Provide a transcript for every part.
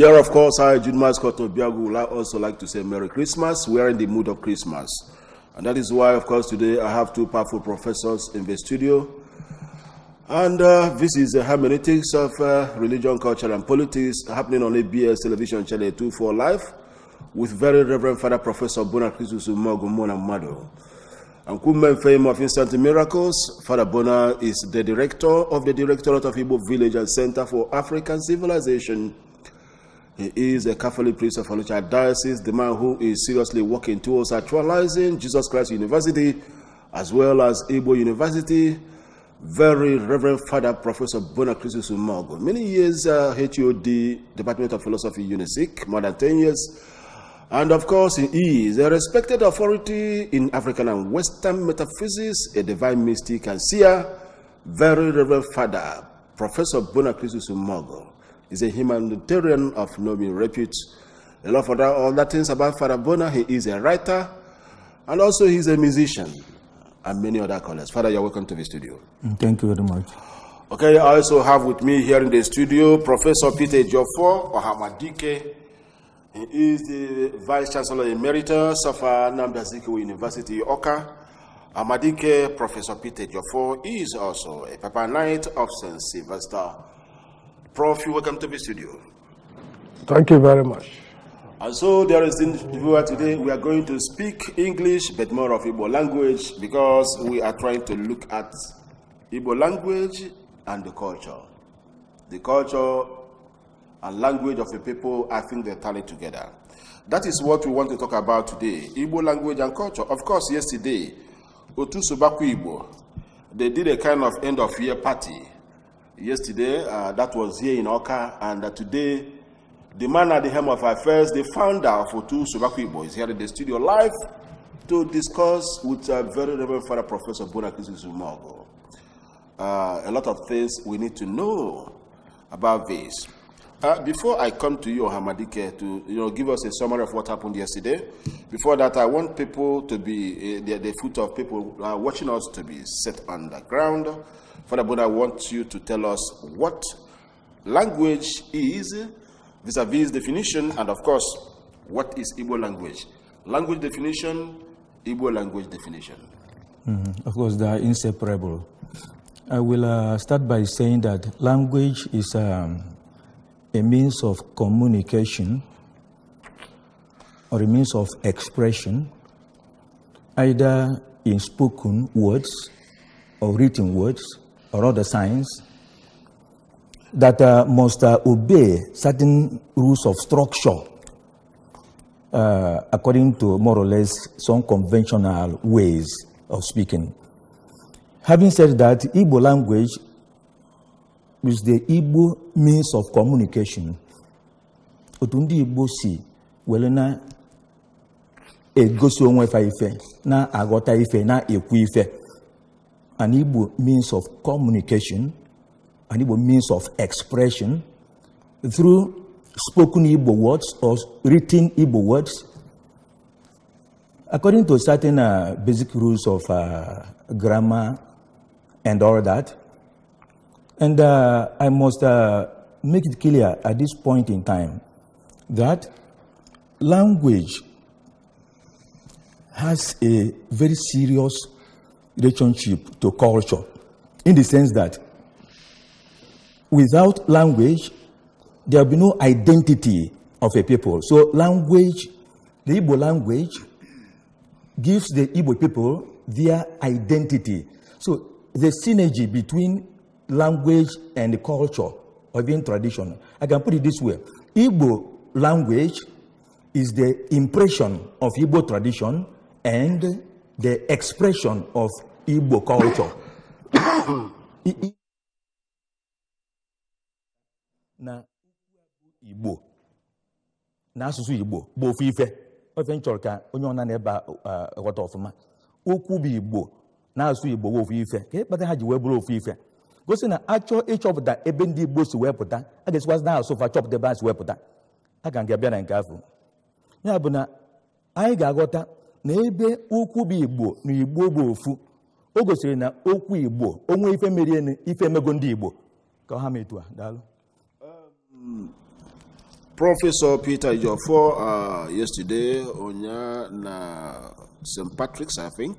Here, of course, I, Jude Mascot Obiagu, would also like to say Merry Christmas. We are in the mood of Christmas. And that is why, of course, today I have two powerful professors in the studio. And uh, this is the hermeneutics of uh, religion, culture, and politics happening on ABS television channel 2 for Life with very Reverend Father Professor Bonakrisus Mogumona Mado. And Kumben Fame of Instant Miracles, Father Bona is the director of the Directorate of Igbo Village and Center for African Civilization he is a Catholic priest of Alucha Diocese, the man who is seriously working towards actualizing Jesus Christ University as well as Igbo University. Very Reverend Father Professor Bonacrisis Umago. Many years uh, HOD, Department of Philosophy, UNISIC, more than 10 years. And of course, he is a respected authority in African and Western metaphysics, a divine mystic and seer. Very Reverend Father Professor Bonacrisis Umago. He's a humanitarian of noble repute. A lot of other things about Father Bona. He is a writer and also he's a musician and many other callers. Father, you're welcome to the studio. Mm, thank you very much. Okay, I also have with me here in the studio Professor Peter Joffo Ohamadike. He is the Vice Chancellor Emeritus of uh, Namda University, Oka. Amadike, Professor Peter Joffo, is also a Papa Knight of St. Sylvester. Prof, you welcome to the studio. Thank you very much. And so, there is in viewer today, we are going to speak English, but more of Igbo language, because we are trying to look at Igbo language and the culture. The culture and language of the people, I think they tally together. That is what we want to talk about today, Igbo language and culture. Of course, yesterday, Otu Subaku Igbo, they did a kind of end-of-year party yesterday, uh, that was here in Oka, and uh, today, the man at the helm of affairs, the founder of Otu Subakwibo, Boys, here in the studio live to discuss with uh, very Reverend Father Professor Bonakisi Zumago. Uh, a lot of things we need to know about this. Uh, before I come to you, Hamadike, to you know, give us a summary of what happened yesterday. Before that, I want people to be uh, the, the foot of people uh, watching us to be set on the ground. Father, but I want you to tell us what language is vis-a-vis -vis definition, and of course, what is Igbo language? Language definition, Igbo language definition. Mm Of course, they are inseparable. I will uh, start by saying that language is. Um, a means of communication or a means of expression, either in spoken words or written words or other signs that uh, must uh, obey certain rules of structure uh, according to more or less some conventional ways of speaking. Having said that, Igbo language Is the Igbo means of communication otu ndị Igbo si were na-egosi onwe fa ife na-aghọta ife na-ekwu ife an Igbo means of communication an Igbo means of expression through spoken Igbo words or written Igbo words according to certain uh, basic rules of uh, grammar and all that And uh, I must uh, make it clear at this point in time that language has a very serious relationship to culture in the sense that without language, there will be no identity of a people. So, language, the Ibo language, gives the Ibo people their identity. So, the synergy between language and culture or even tradition. I can put it this way Igbo language is the impression of Igbo tradition and the expression of Igbo culture. na Igbo na Igbo ọfụma Igbo na Igbo gosi na achọ ịchọpụta ebe ndị igbo si wepụta pụta a ga-esikwasị na asụfa chọpụta ebe a si wee pụta aga nga abịa na nke afọ ya bụ na anyị ga-aghọta na ebe ukwu bụ igbo na igbo bụ ofu o gosiri na okwu igbo onwe ife na ife emego ndị igbo ka ha metụ um, uh, yesterday na St. Patrick's I think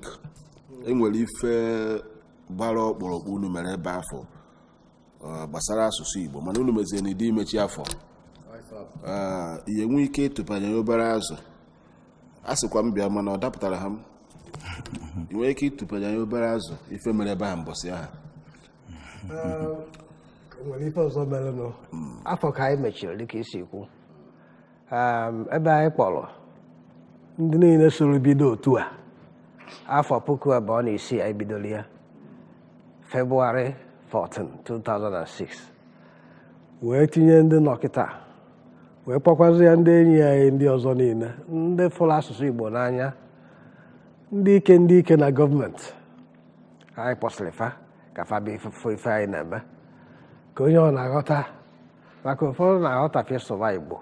enwere ife gbara ọkpụrụkpụ unu mere ebe afọ gbasara asụsụ Igbo mana unu mezie n'ide imechi afọ ihe nwee ike ịtụpanye obere azụ a sịkwa m bịa mana ọ dapụtara ha m ị ike ịtụpanye anya obere azụ ife mere ebe a mbọsị aha hmm. afọ ka anyị mechiri dịka isi kwu ehm, ebe anyị kpọrọ ndị niile soro bido otu a afọ puku abụọ na isii anyị bidoro ya February 14, 2006 wee tinye ndị nọkịta wee kpọkwazị ya ndị enyi anyị ndị ọzọ niile ndị fụrụ asụsụ Igbo n'anya ndị ike ndị ike na gọọmenti anyị kpọsịrị fa ka fa bụ ife anyị na-eme ka onye ọ na-aghọta maka ụfọdụ na aghọta sụba Igbo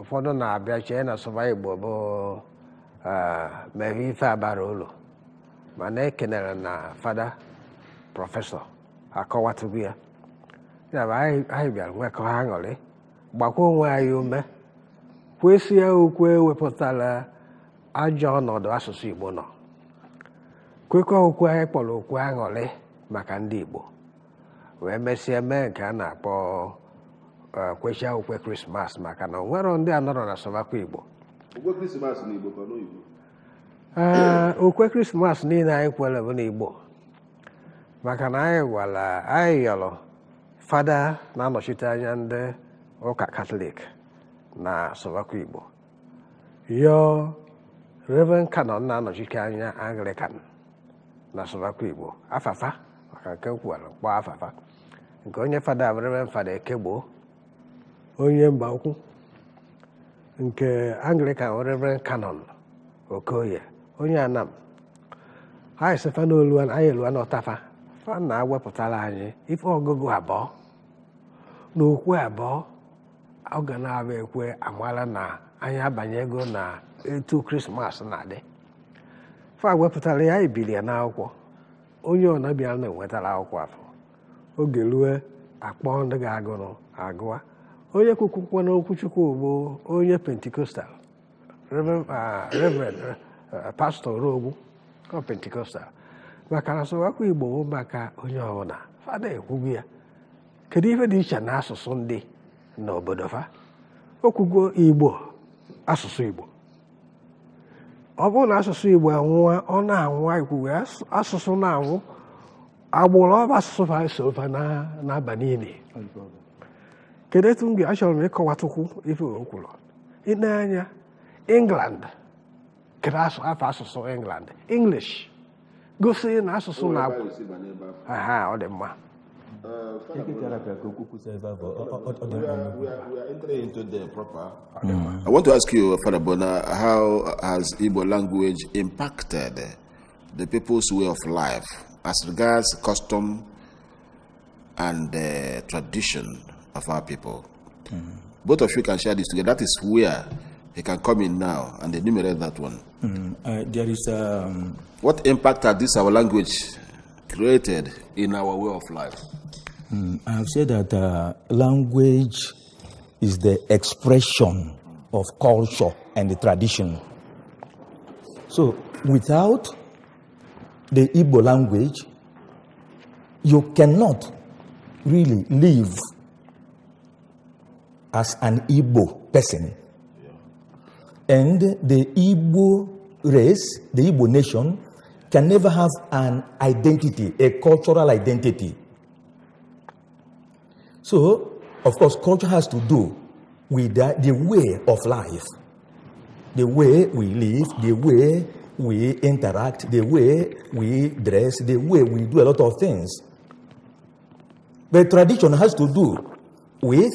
ụfọdụ na-abịa chee na sụba Igbo bụ eh, mere ife abara ụlọ mana ekenere na fada prọfesọ akọwatụgo ya ya bụ anyị bịara nwekọ ha aṅụrị gbakwa onwe anyị ume kwesị ya okwu ewepụtala ajọ ọnọdụ asụsụ Igbo nọ kwekọ okwu anyị kpọrọ okwu aṅụrị maka ndị Igbo wee mesịa mee nke a na-akpọ e, kwechia okwe krismas maka na onwero ndị anọrọ na sọmakwa Igbo okwe krismas e, niile anyị kwere bụ n'Igbo maka na anyị gwara anyị yọrọ fada na-anọchite anya ndị ụka katọlik na sọlọkwa igbo yọọ reven kanọn na-anọchite anya anglican na sọlọkwa igbo afafa maka nke kwuwara mkpọ afafa nke onye fada bụ fada ekegbo onye mba ukwu nke anglican kanọn canon okoye onye anam anyị sefa n'olu anyị eluwa n'ọtafa fa na wepụtara anyị ife ọgụgụ abụọ na okwu abụọ ọ ga na-abụ ekwe amala na anyị abanye ego na etu krismas na-adị fa wepụtara ya ibiri ya n'akwụkwọ onye ọnabịa na-enwetara akwụkwọ afọ oge rue akpọ ndị ga-agụrụ agụa onye kwukwukwa n'okwuchukwu ugbo onye pentikostal rev. Uh, uh, pastọ ọ pentikostal maka na asụwakwa igbo bụ maka onye ọbụla fa na ya kedu ife dị iche na asụsụ ndị n'obodo fa okwugo igbo asụsụ igbo ọ bụrụ na asụsụ igbo anwụwa ọ na-anwụ ikwugo asụsụ na-anwụ agbụrụ ọba asụsụ fa so fa n'aba niile kedu etu m ga-achọrọ m ịkọwatukwu ife o kwuru ine anya england kedu afọ asụsụ england english na oh, aha ọ uh, mm. I want to ask you, Father Bona, how has Igbo language impacted the people's way of life as regards custom and uh, tradition of our people? Mm -hmm. Both of you can share this together. That is where he can come in now and enumerate that one. Mm, uh, there is. Um, what impact has this our language created in our way of life? Mm, I have said that uh, language is the expression of culture and the tradition. So, without the Igbo language, you cannot really live as an Igbo person. And the Igbo race, the Igbo nation, can never have an identity, a cultural identity. So, of course, culture has to do with the, the way of life, the way we live, the way we interact, the way we dress, the way we do a lot of things. But tradition has to do with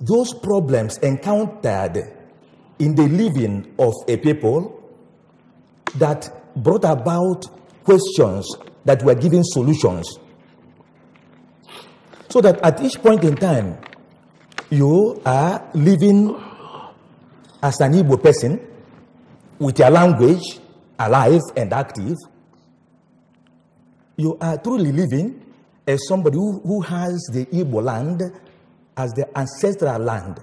those problems encountered in the living of a people that brought about questions that were given solutions. So that at each point in time, you are living as an Igbo person with your language alive and active. You are truly living as somebody who, who has the Igbo land as the ancestral land.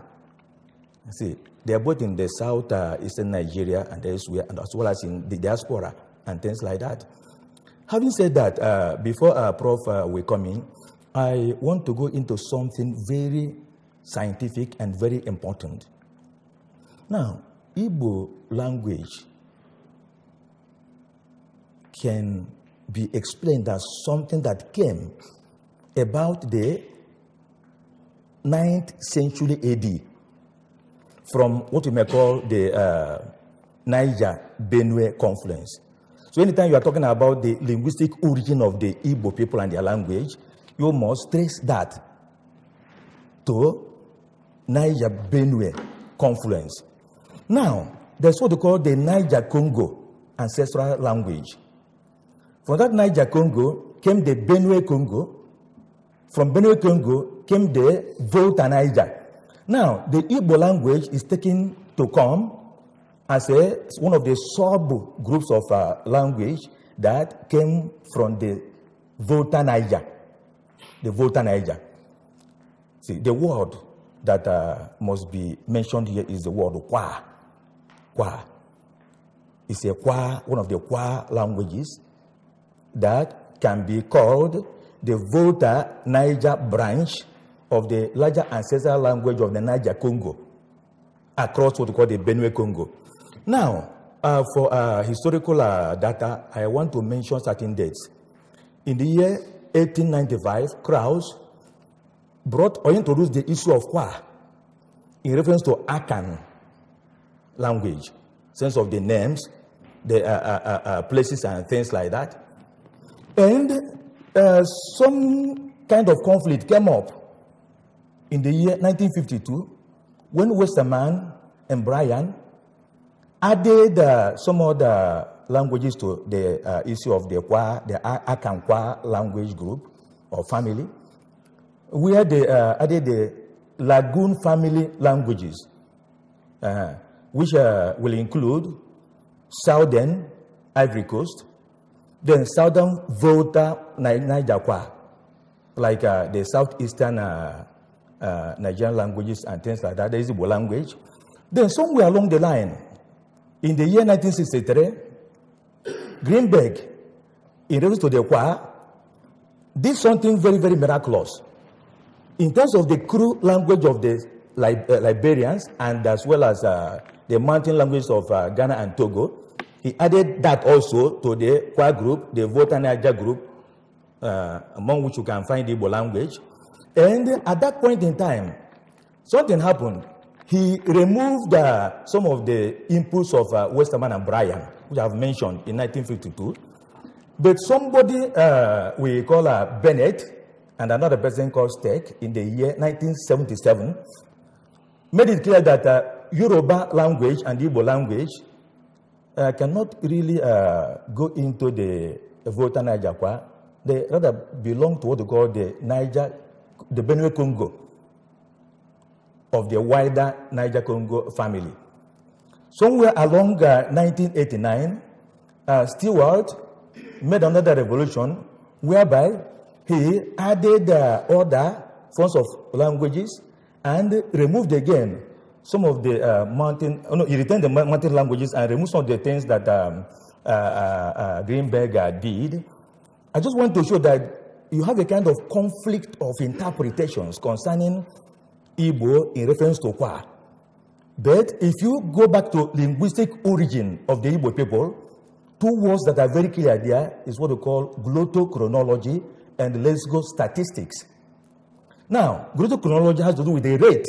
see, they are both in the south uh, eastern Nigeria and elsewhere, and as well as in the diaspora and things like that. Having said that, uh, before uh, Prof uh, will come in, I want to go into something very scientific and very important. Now, Igbo language can be explained as something that came about the 9th century AD from what we may call the uh, Niger Benue confluence. So, anytime you are talking about the linguistic origin of the Igbo people and their language, you must trace that to Niger Benue confluence. Now, there's what they call the Niger Congo ancestral language. From that Niger Congo came the Benue Congo. From Benue Congo came the Volta Niger. Now, the Igbo language is taken to come as a, one of the sub groups of uh, language that came from the Volta Niger. The Volta Niger. See, the word that uh, must be mentioned here is the word Kwa. Kwa. It's a Kwa, one of the Kwa languages that can be called the Volta Niger branch of the larger ancestral language of the Niger Congo across what we call the Benue Congo. Now, uh, for uh, historical uh, data, I want to mention certain dates. In the year 1895, Krauss brought or introduced the issue of Kwa in reference to Akan language, sense of the names, the uh, uh, uh, places and things like that. And some kind of conflict came up in the year 1952 when Westerman and Bryan added uh, some other languages to the uh, issue of the Kwa, the Akankwa language group or family, where they uh, added the Lagoon family languages, uh, which uh, will include Southern Ivory Coast, then Southern Volta Niger Kwa, like uh, the Southeastern uh, uh, Nigerian languages and things like that, a Igbo language. Then somewhere along the line, in the year 1963, Greenberg, in reference to the choir, did something very, very miraculous. In terms of the crude language of the uh, Liberians and as well as uh, the mountain languages of uh, Ghana and Togo, he added that also to the choir group, the Niger group, uh, among which you can find the Igbo language. And at that point in time, something happened. He removed uh, some of the inputs of uh, Westerman and Bryan, which I've mentioned in 1952. But somebody uh, we call uh, Bennett and another person called Steck in the year 1977 made it clear that uh, Yoruba language and Igbo language uh, cannot really uh, go into the Volta Niger They rather belong to what they call the Niger the Benue Congo of the wider Niger Congo family. Somewhere along uh, 1989, uh, Stewart made another revolution whereby he added uh, other forms of languages and removed again some of the uh, mountain, oh no, he retained the mountain languages and removed some of the things that um, uh, uh, uh, Greenberger did. I just want to show that you have a kind of conflict of interpretations concerning Igbo in reference to Kwa. But if you go back to linguistic origin of the Igbo people, two words that are very clear there is what we call glottochronology and go statistics. Now, glottochronology has to do with the rate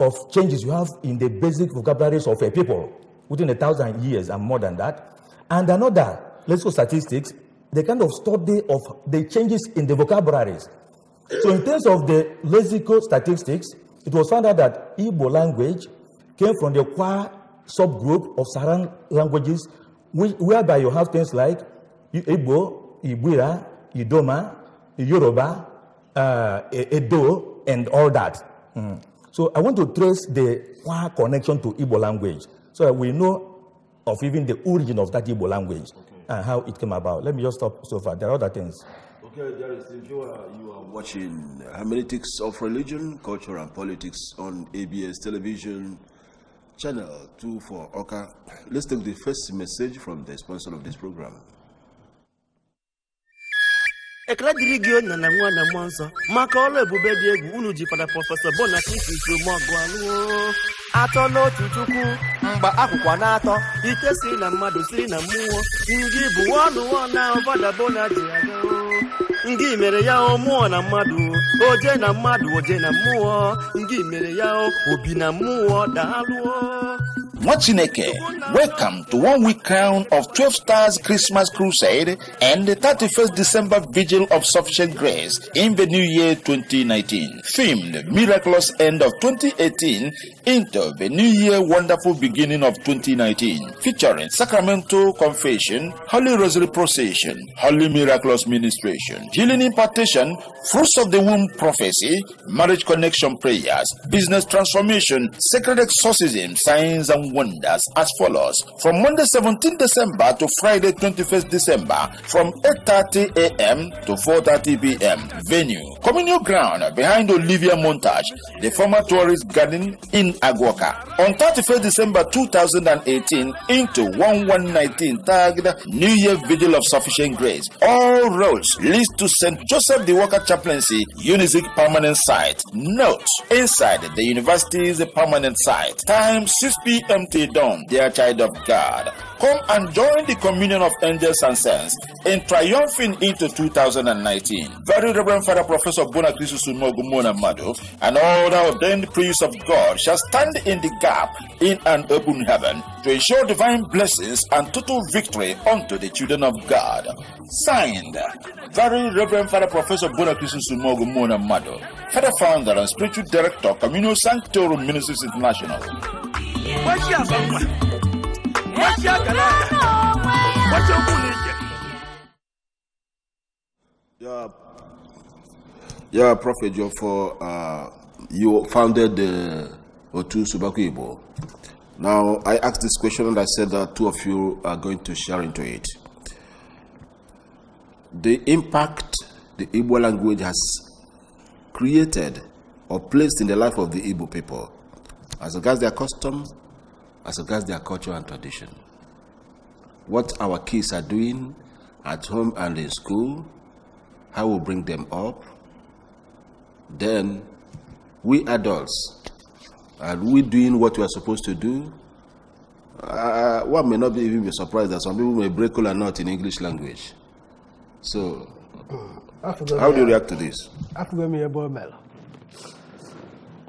of changes you have in the basic vocabularies of a people within a thousand years and more than that. And another, go statistics the kind of study of the changes in the vocabularies. So in terms of the lexical statistics, it was found out that Igbo language came from the Kwa subgroup of Saran languages, whereby you have things like Igbo, Ibira, Idoma, Yoruba, uh, Edo, and all that. Mm. So I want to trace the Kwa connection to Igbo language so that we know of even the origin of that Igbo language. Okay and how it came about. Let me just stop so far. There are other things. Okay, there is you are, you are watching Hermeneutics of Religion, Culture and Politics on ABS Television, Channel 2 for Oka. Let's take the first message from the sponsor of this program. ekele dịrị gị onye na nwa na mmụọ nsọ maka ọrụ ebube dị egwu unu ji fada prọfesọ Bonacristi Usomagu alụọ atọ n'otu chukwu mgbe akwụkwọ na-atọ ite si na mmadụ siri na mmụọ ndị bụ ọnụ na ọbada Bona ji aga ndị mere ya mụọ na mmadụ oje na mmadụ oje na mmụọ ndị mere ya obi na mmụọ daalụọ Nwachineke, welcome to one week crown of 12 Stars Christmas Crusade and the 31st December Vigil of Sufficient Grace in the new year 2019. Themed Miraculous End of 2018 into the new year Wonderful Beginning of 2019. Featuring Sacramento Confession, Holy Rosary Procession, Holy Miraculous Ministration, Healing Impartation, Fruits of the Womb Prophecy, Marriage Connection Prayers, Business Transformation, Sacred Exorcism, Signs and wonders as follows. From Monday 17 December to Friday 21st December, from 8.30 a.m. to 4.30 p.m. Venue, Communal Ground behind Olivia Montage, the former tourist garden in Aguaca. On 31st December 2018 into 1:19 tagged New Year Vigil of Sufficient Grace. All roads lead to St. Joseph the Walker Chaplaincy, Unisic permanent site. Note, inside the university is a permanent site. Time 6 p.m until dawn, they are child of God. Come and join the communion of angels and saints in triumphing into 2019. Very Reverend Father Professor Bonakrisu Sumogumona Madu and all the ordained priests of God shall stand in the gap in an open heaven to ensure divine blessings and total victory unto the children of God. Signed, Very Reverend Father Professor Bonakrisu Sumogumona Madu, Father Founder and Spiritual Director, Communal Sanctorum Ministries International. Yeah, yeah, Prophet Jofor, uh, you founded the Otu Ibo. Now, I asked this question and I said that two of you are going to share into it. The impact the Igbo language has created or placed in the life of the Igbo people as regards their customs, as regards their culture and tradition. What our kids are doing at home and in school, how we bring them up, then we adults, are we doing what we are supposed to do? Uh, one may not be even be surprised that some people may break or not in English language. So, how do you react to this? afụgo me, a boy, omela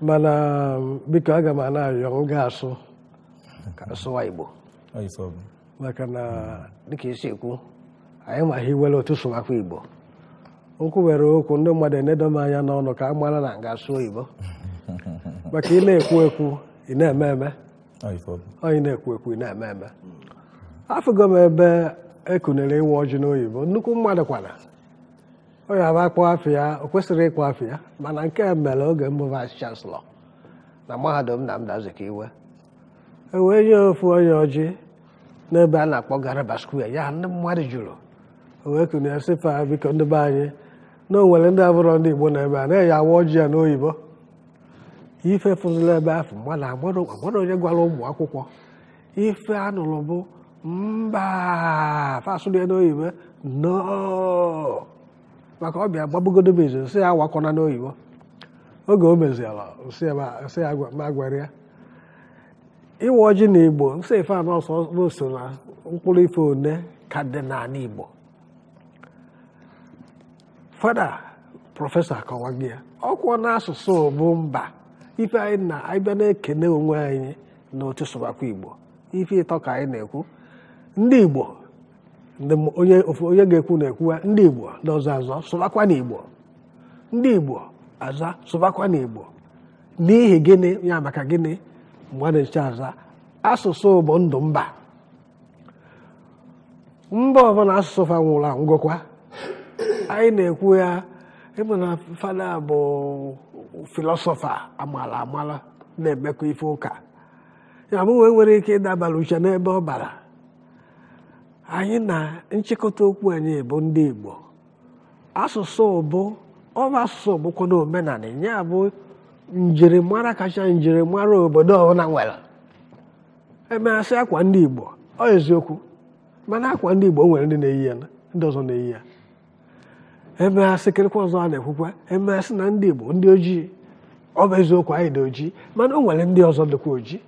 mana um, because I m na-arịọ m ga sụwa Igbo maka na hmm. dịka isi ekwu anyị ma ha iwere otu sụwakwa Igbo nkwụ were okwu ndị mmadụ enedo m anya n'ọnụ ka a mara na nga asụ oyibo maka ị na-ekwu ekwu ị na-eme eme onye na-ekwu ekwu ị na-eme eme afụgo m ebe ekunere ịnwe ọjị n'oyibo nnukwu mmadụ kwana onye aba akpọ afọ ya o kwesịrị ịkpụ afọ ya mana nke mere oge mbụ vice chancellor na mahadum na ka iwe. wee nye ofu onye ọjị n'ebe a na-akpọ Garaba Square ya ndị mmadụ jụrụ wee kụrụ ya fa biko ndị be anyị na o nwere ndị abụrọ ndị Igbo na-ebe a na-eyi awa ọjị ya n'oyibo ife fụzụla ebe ahụ mmadụ agbara onye gwara ụmụ akwụkwọ ife anụrụ bụ mba fasụlụ ya n'oyibo no maka ọbịa gbabugodobezo nsị ya awakọna n'oyibo oge o meziela nsị ya ma ya ịwa ọjị na igbo nsọ ife anọ ọsọ na mkpụrụ ife one ka dị n'ala igbo fada prọfesọ akọwago ya na n'asụsụ bụ mba ife anyị na anyị na-ekene onwe anyị na otu sụbakwa igbo ife ịtọ ka anyị na-ekwu ndị igbo onye ga-ekwu na-ekwuwa ndị igbo na ọzọ azọ sụbakwa na ndị igbo aza sụbakwa na igbo n'ihi gịnị ya maka gịnị mgbe a aza asụsụ bụ ndụ mba mba ọbụla asụsụ fa nwụrụ anwụ anyị na-ekwu ya ịmụ na fada bụ filosofa amala amala na-emekọ ife ụka ya mụnwe nwere ike ịdabara uche n'ebe ọ bara anyị na nchịkọta okwu anyị bụ ndị Igbo asụsụ bụ asụsụ bụkwa na omenala ya bụ njirimara kacha njirimara obodo ọbụla nwere emeghasị akwa ndị Igbo ọ eziokwu mana akwa ndị Igbo nwere ndị na-eyi ya ndị ọzọ na-eyi ya emeghasị kịrịkwa ọzọ a na-ekwukwa emeghasị na ndị Igbo ndị ojii ọ bụ eziokwu anyị dị ojii mana o nwere ndị ọzọ dịkwa ojii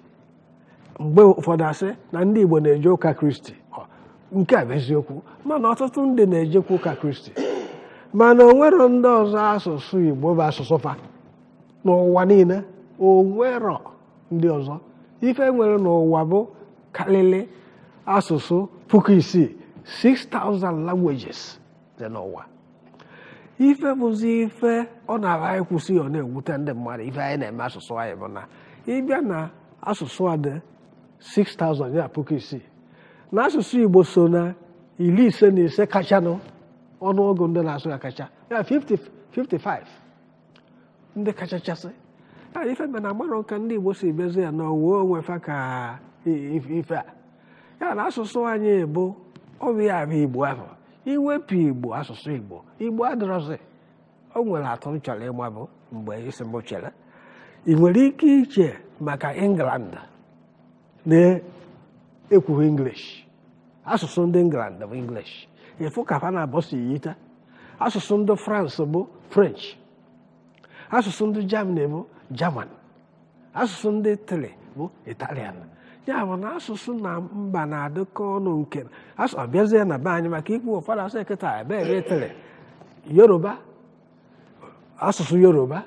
mgbe ụfọdụ asị na ndị Igbo na-eje ụka Kristi nke a bụ eziokwu mana ọtụtụ ndị na-ejekwa ụka Kristi mana o nwere ndị ọzọ asụsụ Igbo bụ asụsụ fa n'ụwa niile o nwero ndị ọzọ ife nwere n'ụwa bụ karịrị asụsụ puku isii 6,000 languages dị n'ụwa ife bụzi ife ọ na agha anyị kwụsị ọ na-ewute ndị mmadụ ife anyị na-eme asụsụ anyị bụ na ịbịa na asụsụ a dị 6,000 ya puku isii na asụsụ Igbo so na iri ise na ise kachanụ ọnụọgụ ndị na-asụ ya kacha ya 55 ndị kachachasị a ife mbe na agbarọ ka ndị Igbo si bezi ya na owuwe onwe fa ka ife a ya na asụsụ anyị bụ ọbịa abụ Igbo ahụ iwepụ Igbo asụsụ Igbo Igbo adịrọzi o nwere atụ m chọrọ ịgba bụ mgbe isi m chere ị nwere ike iche maka England na-ekwughị English asụsụ ndị England bụ English ịfụ ka fa na abọsi yita asụsụ ndị France bụ French asụsụ ndị Germany bụ German asụsụ ndị Italy bụ Italian ya bụ na asụsụ na mba na-adịkọ ọnụ nke ọ na be anyị maka ikwu ụfọdụ asụ ekịta ebe Italy Yoruba asụsụ Yoruba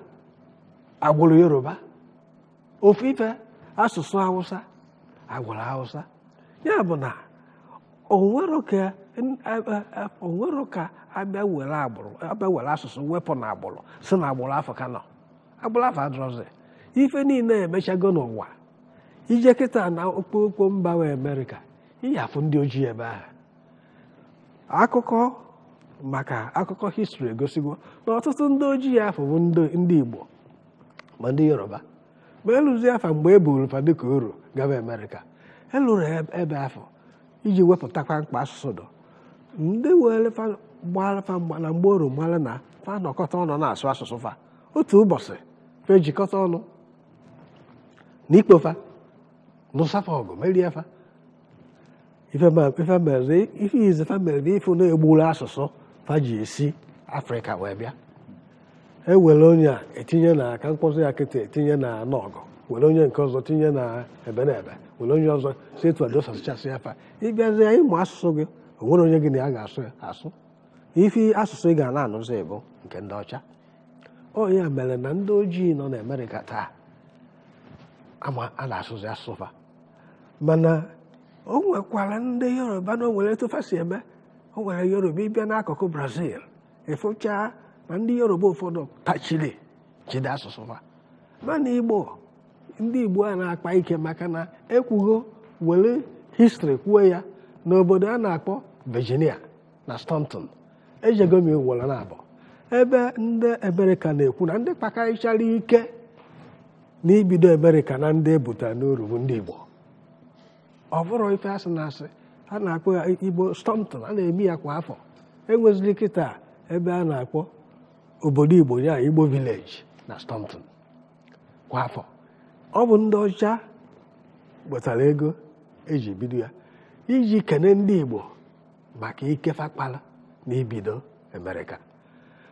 agwụrụ Yoruba ofu ife asụsụ Hausa agwụrụ Hausa ya bụ na o nwere onwero ka abịa were agbụrụ abịa were asụsụ wepụ na agbụrụ si na agbụrụ afọ ka nọ agbụrụ afọ adọrọzi ife niile emechago n'ụwa ije kịta na okpokpo mba we amerịka iyi ndị ojii ebe ahụ akụkọ maka akụkọ histri egosigo na ọtụtụ ndị ojii afọ bụ ndị igbo ma ndị yoruba ma elụzi afa mgbe e buru fa dịka oro gaba amerịka elụrụ e, ebe afọ iji wepụtakwa mkpa asụsụ dọ ndị were gbara fa mgba na mgbe oru mara na fa nọkọta ọnụ na-asụ asụsụ fa otu ụbọchị fa ejikọta ọnụ na ikpofa nụsafa ọgụ merie fa ife izi fa mere na ife na-egburu asụsụ fa ji esi afrịka wee bịa ewere onye a etinye na aka mkpọsụ ya kịta etinye na nọgụ were onye nke ọzọ tinye na ebe na ebe were onye ọzọ si etu adosachichasị ya fa ịbịazi ịmụ asụsụ gị o onye gị na ya ga-asụ asụ ife asụsụ ị ga na-anụzi ịbụ nke ndị ọcha o ya mere na ndị ojii nọ na amerịka taa ama a na-asụzi asụfa mana o nwekwara ndị yoruba na o nwere etu fa si eme o nwere yoruba ịbịa n'akụkụ brazil ịfụchaa na ndị yoruba ụfọdụ tachiri jide asụsụ fa mana igbo ndị igbo a na-akpa ike maka na ekwugo were histri kwuo ya n'obodo a na-akpọ Virginia na Staunton ejegomi m na abụọ ebe ndị ebereka na-ekwu na ndị kpakarịchara ike na n'ibido ebereka na ndị ebutara n'uru bụ ndị Igbo ọ ife asị na asị a na-akpọ ya Igbo Staunton a na-eme ya kwa afọ enweziri kịta ebe a na-akpọ obodo Igbo ya Igbo village na Staunton kwa afọ ọ bụ ndị ọcha wetara ego eji bido ya iji kene ndị Igbo maka ikefe akpala na ibido Amerịka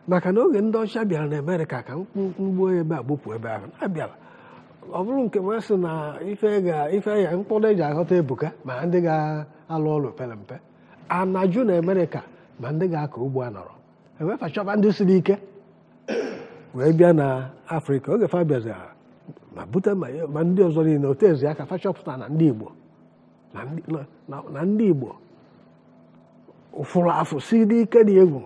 maka na oge ndị ọcha bịara na Amerịka ka mkpugbuo ebe a gbupụ ebe ahụ abịara ọ bụrụ nke ma sị na ife ya mkpụrụ eji aghọta ebuka ma ndị ga-alụ ọlụ pere mpe anaju na Amerịka ma ndị ga-akọ ugbo a nọrọ enwefa ndị siri ike wee bịa na afrịka oge fa ma bute ma ndị ọzọ niile otu ezi aka fa na ndị igbo na ndị igbo fụrụ afọ si dị ike na egwu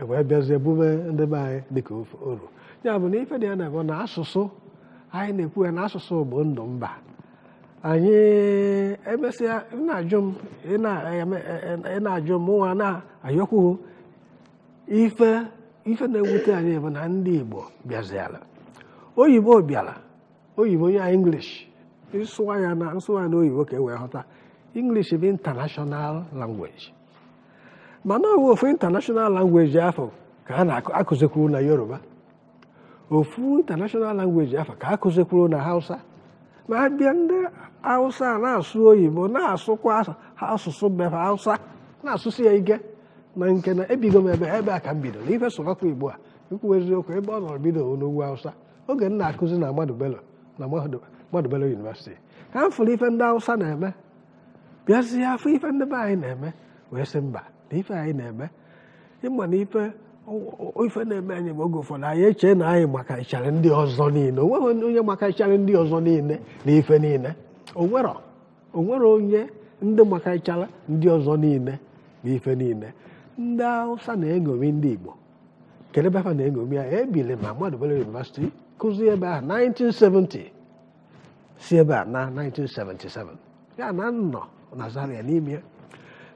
e wee bịazie bume ndị be anyị dịka ofe oro ya bụ na ife dị ya na-abụ na asụsụ anyị na-ekwu ya na asụsụ bụ ndụ mba anyị emesịa na-ajụ m ị e, e, na-ajụ m nwa na-ayọkwughị ife ife na-ewute anyị bụ na ndị Igbo bịaziala oyibo bịara oyibo ya inglish ịsụwa ya na nsụwa na oyibo ka e wee ghọta inglish bụ international language mana ọwụ ofu international language afọ ka a na-akụzikwuru na yoruba ofu international language afọ ka akụzikwuru na hausa ma a bịa ndị hausa na-asụ oyibo na-asụkwa asụsụ be hausa na-asụsụ ya ike na nke na ebigo m ebe ebe a ka m bido n'ife sụbakwa igbo a ikwuwa eziokwu ebe ọ nọrọ bido n'ugwu hausa oge m na-akụzi na madubelo na madubelo yunivesiti ka m fụrụ ife ndị hausa na-eme bịazie afọ ife ndị be anyị na-eme wee sị mba na ife anyị na-eme ịma na ife ife na-eme anyị ma oge ụfọdụ anyị eche na anyị ịchara ndị ọzọ niile onweghị onye ịchara ndị ọzọ niile na ife niile onwere onye ndị ịchara ndị ọzọ niile na ife niile ndị Hausa na-eṅomi ndị Igbo Kedu ebe ha na-eṅomi ya ebili ma Madubele University kụzi ebe ahụ 1970 si ebe a na 1977 ya na nnọ na Zaria n'ime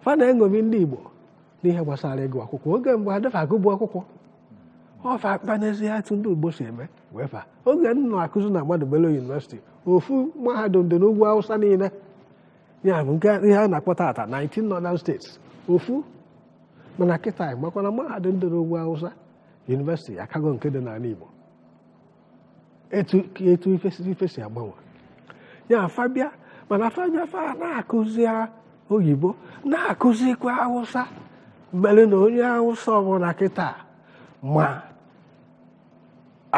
fa na-eṅomi ndị Igbo n'ihe gbasara ịgụ akwụkwọ oge mgbe adịfago bụ akwụkwọ ọfa akpa n'ezie etu ndị ugbo si eme wee fa oge nna akụzi na mmadụ belo yunivesiti ofu mahadum dị n'ugwu Awụsa niile ya bụ nke ihe a na-akpọ tata 19 northern states ofu oh, eh, eh, mana kịta makwana mahadum dị n'ugwu Awụsa yunivesiti akago nke dị n'ala Igbo etu ife si agbanwe ya fabịa mana fabịa fa na-akụzi oyibo na-akụzikwa Awụsa mere na onye awụsa ọbụla kịta ma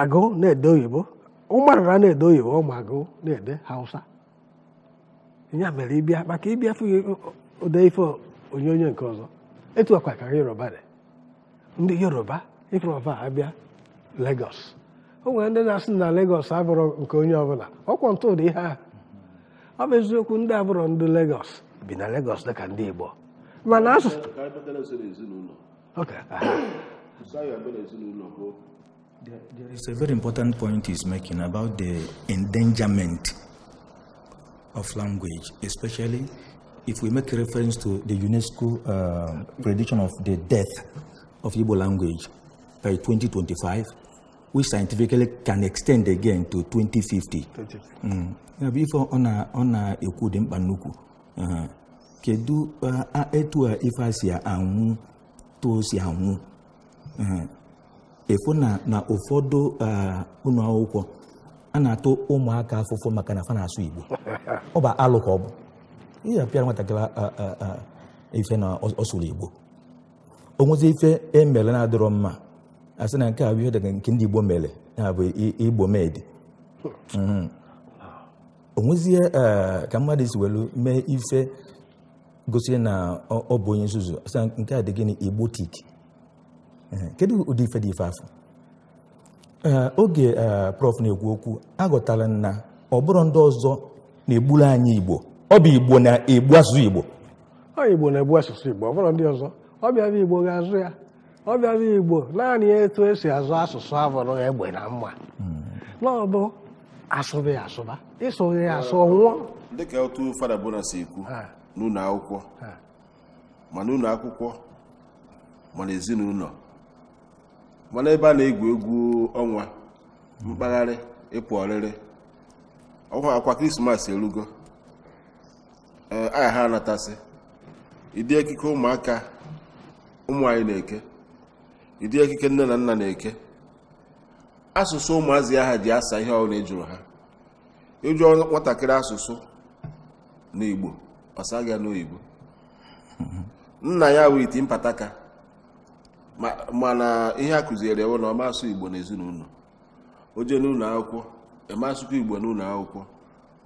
agụ na-ede oyibo ụmarara na-ede oyibo ma agụ na-ede hausa ya mere ịbịa maka ịbịa fụghị ode ife onyonyo nke ọzọ etu akwa yoruba dị ndị yoruba yoruba abịa legos o nwere ndị na-asị na legos abụrụ nke onye ọbụla ọkwa ntụ dị ihe ahụ ọ bụ eziokwu ndị abụrụ ndị legos bi na legos dịka ndị igbo mana there is a very important point he's making about the endangerment of language, especially if we make reference to the UNESCO uh, prediction of the death of Igbo language by 2025, which scientifically can extend again to 2050. Mm. before, ona, ona, ekwu dị mkpa kedu etu a ife si anwụ tuo si anwụ efu na na ụfọdụ ụlọ akwụkwọ a na-atụ ụmụaka afụfụ maka na fa na-asụ Igbo ọ bụ alụ ka ọ bụ ihe apịara nwatakịrị ife na ọsụrụ Igbo onwezi ife emere na-adịrọ mma a sị na nke a bụ ihe dị nke ndị Igbo mere ya bụ Igbo medi onwezie ka mmadụ si welu mee ife gosiri na ọ bụ onye nzuzu nke a dị gịnị igbotik kedu ụdị ife dị ife afọ oge prof na-ekwu okwu agụtala na ọ bụrụ ndị ọzọ na-egburu anyị igbo ọ bụ igbo na-egbu asụsụ igbo ọ igbo na-egbu asụsụ igbo ọ bụrụ ndị ọzọ ọ bịara igbo ga-azụ ya ọ bịara igbo naanị etu esi azụ asụsụ abụrụ egbe na mma hmm. na ọ bụ asụba asụba ịsụghị ya asụ nwụọ dịka otu fada bụla si ekwu n'ụlọ akwụkwọ ma ụlọ akwụkwọ ma n'ezinụlọ mana ebe a na-egwu egwu ọnwa mkpagharị ịpụ ọrịrị ọkwa akwa krismas erugo e, aha ha anatasị ịdị ekike ụmụaka ụmụ anyị na-eke ịdị ekike nne na nna na-eke asụsụ ụmụazị aha ji asa ihe ọbụla ejụrụ ha ịjụọ nwatakịrị asụsụ n'Igbo ọsaghị n'oyibo nna ya wụ iti mpataka mana ihe a kụziere ewe na ọma igbo igbo n'ezinụlọ oje n'ụlọ akwụkwọ eme asụkwa igbo n'ụlọ akwụkwọ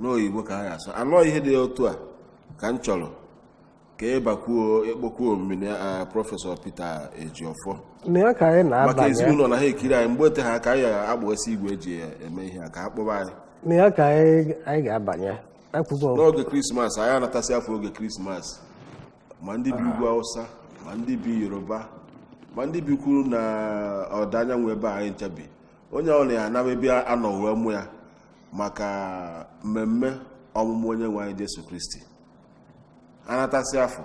n'oyibo ka ha ga-asụ anọ ihe dị otu a ka m chọrọ ka ịbakwuo e ịkpọkwuo e mmiri prọfesọ pete Ejiofor maka ezinụlọ na ha ekiri anyị mgbe ote ha ka anyị agbasi igwe eji e, eme ihe a ka ha kpọba anyị anyị ga-abanye n'oge krismas anyị anatasị afọ oge krismas ma ndị bi ugwu awụsa ma ndị bi yoruba ma ndị bi na ọda anyanwụ ebe anyị nchebi onye ọla ya anaba ebe anọ wee mụ ya maka mmemme ọmụmụ onye nwe anyị jesu kristi anatasị afọ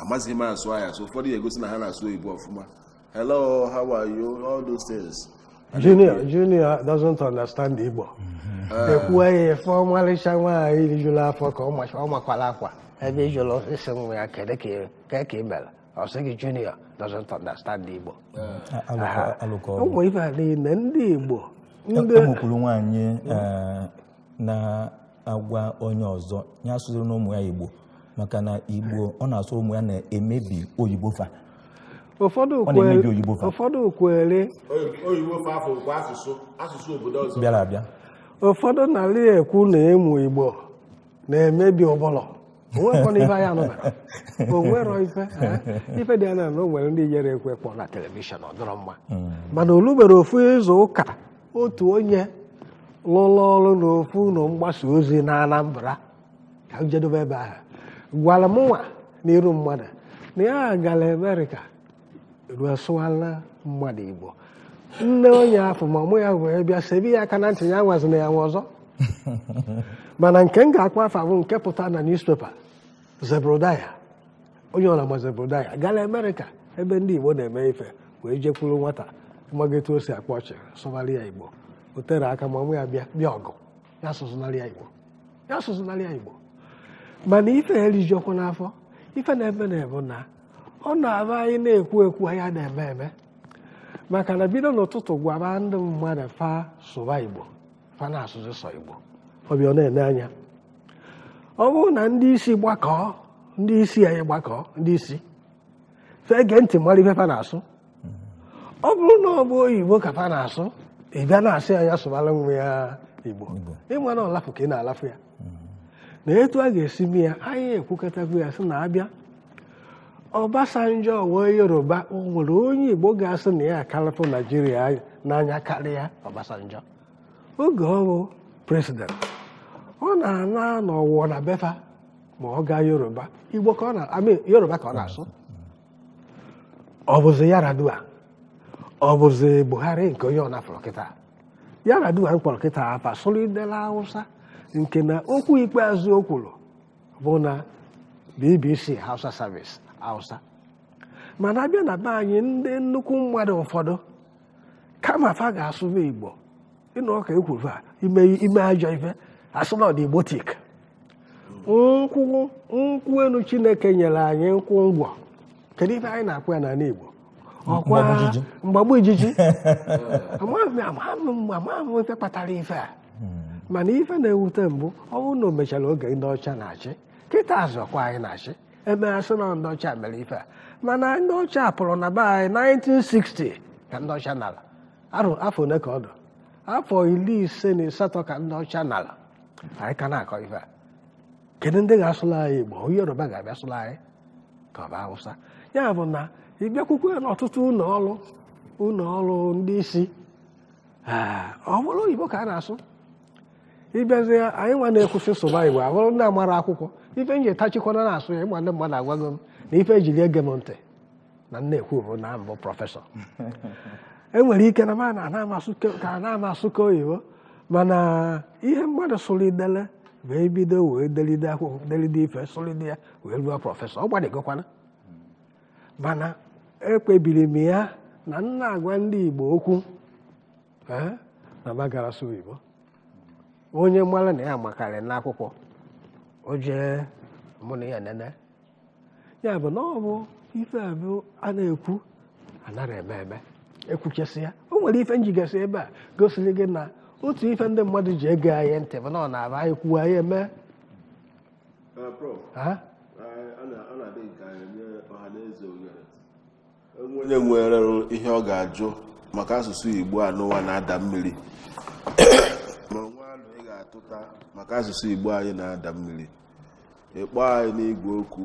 amazighị m asụ ahịa so ụfọdụ ya egosi na ha na-asụ oyibo ọfụma hello how are you all those things junior mm-hmm. junior doesn't understand Igbo ekwughị ife ọmalịcha nwaanyị rijuru afọ ka ọ makwala akwa ebe ijụrụ osisi nwa ya kedu ka ị mere ọ sị gị junior doesn't understand Igbo ụmụ ibe a niile ndị Igbo enwekwuru eh, eh, nwaanyị hmm? eh, na-agwa onye ọzọ ya asụziri na ụmụ ya Igbo maka na Igbo ọ na-asụ ụmụ ya na-emebi oyibo fa ụfọdụ ụfọdụ kwere ụfọdụ n'ala ekwu na ịmụ igbo na-emebi ụbụlọ onwero ife dị anya na o nwere ndị nyere ekwe kpọ na telivishọn ọdọrọ mma mm. mana olugbere ofu ịzụ ụka otu onye lụrụ ọrụ n'ofu ụlọ mgbasa ozi na Anambra ka m jedebe ebe ahụ gwara m nwa n'iru mmadụ na ya gara Amerịka ruo sụwala mmadụ Igbo nne onye afọ ma ọmụ ya wee bịa sebe ya aka na ntị ya nwazina ya nwe ọzọ mana nke m ga-akpọ afọ bụ nke pụta na newspaper zebrodaya onye ọra ma zebrodaya gala Amerịka ebe ndị Igbo na-eme ife wee jekwuru nwata mmagetu o si akpa ọchị sụgharị ya Igbo o aka ma ọmụ ya bịa bịa ọgụ ya sụzụnarị ya Igbo ya sụzụnarị ya Igbo mana ife erijiọkwa n'afọ ife na-eme na-ebu na ọ na-abụ anyị na-ekwu ekwu anya na-eme eme maka na bido n'ụtụtụ gwara ndị mmadụ fa sụwa igbo fa na-asụzi sọ igbo ọbịa ọ na-ene anya ọ bụrụ na ndị isi gbakọọ ndị isi anyị gbakọọ ndị isi fee ntị mmadụ ife fa na-asụ ọ bụrụ na ọ bụ oyibo ka fa na-asụ ị bịa na-asị anya sụbara nwa ya igbo ịma na ọlafụ ka ị na-alafụ ya na etu a ga-esi mee ya anyị ekwukọtago ya sị na abịa Obasanjo wee Yoruba o nwere onye Igbo ga-asị na ya akalapụ Naijiria n'anya karịa Obasanjo oge ọ bụ ọ na-ana na na befa ma ọ gaa Yoruba Igbo ka ọ na Yoruba ka ọ na-asụ ọ bụzi Yaradua ọ bụzi Buhari nke onye ọ na-afọrọ kịta Yaradua mkpọrọ kịta apa sụlidela Hausa nke na okwu ikpeazụ o kwuru bụ na BBC Hausa Service Hausa mana abịa na be anyị ndị nnukwu mmadụ ụfọdụ kama fa ga-asụba Igbo ịnụ ọka ekwuru a ime ime ajọ ife asụlọd igbotik nkwụ nkwụ elu Chineke nyere anyị nkwụ ngwọ kedu ife anyị na akpụ ya n'ala Igbo ọkwa mgbagbu ijiji amaghị ife kpatara ife a mana ife na-ewute mbụ ọ bụrụ na o mechara oge ndị ọcha na-achị kịta azụ ọkwa anyị na-achị ebe asị na ndị ọcha mere ife a mana ndị ọcha pụrụ na be anyị 1960 ka ndị ọcha arụ afọ ole ka ọ afọ iri ise na asatọ ka ndị ọcha nara anyị ka na-akọ ife a kedu ndị ga-asụrụ anyị igbo onye yoruba ga-abịa sụla anyị ka ọ bụ awụsa ya bụ na ịbịakwukwe n'ọtụtụ ụlọ ọrụ ụlọ ọrụ ndị isi ọ bụrụ ah, oyibo ka a na-asụ ịbịazie anyị nwa na-ekwusi Igbo abụrụ ndị amara akwụkwọ ife m ji etachikwana na-asụ ya ịgba ndị mmadụ agwago m na ife ejiri ege m ntị na nnekwu bụ na mbụ prọfesọ enwere ike na na-ama asụka oyibo mana ihe mmadụ sụrụ wee bido wee delide akwụkwọ delide ife sụlide ya wee ruo prọfesọ ọ gbadegokwana mana ekpebiri m ya na nna agwa ndị Igbo okwu eh, na magara sụ Igbo onye mgbara na ya makarị n'akwụkwọ o jee mụ ya nene ya bụ na ọ bụ ife abụ a na-ekwu anara eme eme ekwuchesị ya o nwere ife njigasi ebe a gosiri gị na otu ife ndị mmadụ ji ege anyị ntị bụ na ọ na-aba anyị kwuo anyị eme uh, uh, onye nwere ihe ọ ga-ajụ maka asụsụ Igbo a n'ụwa na-ada mmiri na-atụta maka asụsụ igbo anyị na-ada mmiri ịkpọ anyị n'igwe okwu